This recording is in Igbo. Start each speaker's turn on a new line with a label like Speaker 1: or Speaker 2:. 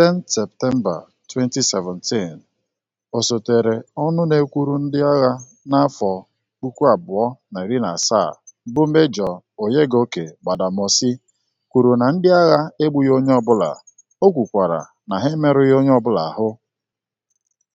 Speaker 1: 10 Septemba 2017, osotere ọnụ na-ekwuru ndị agha n'afọ 2017 bụ Mejọ Onyegoke Gbadamosi kwuru na ndị agha egbughị onye ọbụla, o kwukwara na ha emerụghị onye ọbụla ahụ.